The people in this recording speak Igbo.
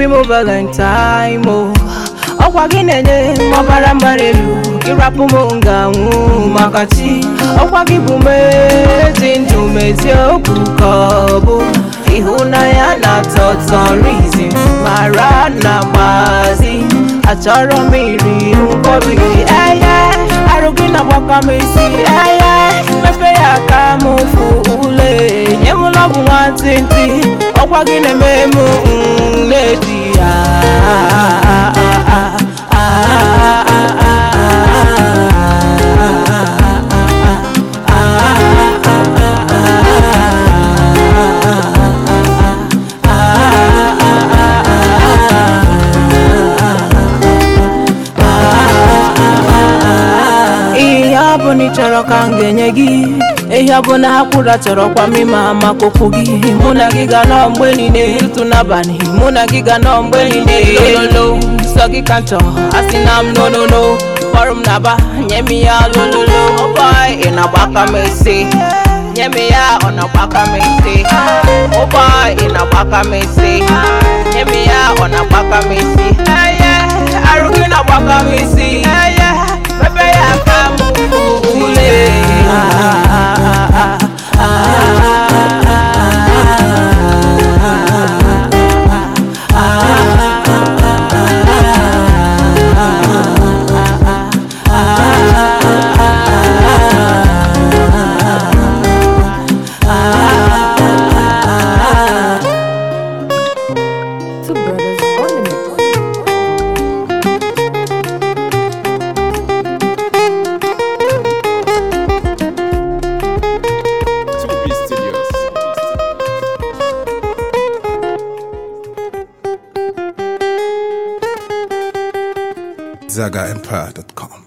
obi m valentine mo ọkwa gị na-enye m ọbara mgbara elu ịrapụ m nga anwụ maka chi ọkwa gị bụ mezi ndụ mezie okwu ka ọ bụ ịhụnanya na-atọ ụtọ rizi mara na gbazi achọrọ m iri nkwobi eye e, arụ gị na-agbakọ m isi eye mmepe e, ya ka m fụ ule nye m lọbụ ntị. ọkwa gị na-eme m na bụ na ị chọrọ ka m ga-enye gị ehi ọ bụ na ha kwụra chọrọkwa m ịma maka okwu gị mụ na gị ga nọọ mgbe niile ịtụ n'abalị mụ na gị ga nọọ mgbe niile lolo sọ gị ka m chọọ asị na m n'ololo kpọrọ m na ba nye m ya lololo oh boy ị na-agbaka m esi nye m ya ọ na-agbaka m esi oh boy ị na-agbaka m esi nye m ya ọ na-agbaka m esi gị na-agbaka m isi zagaempire.com.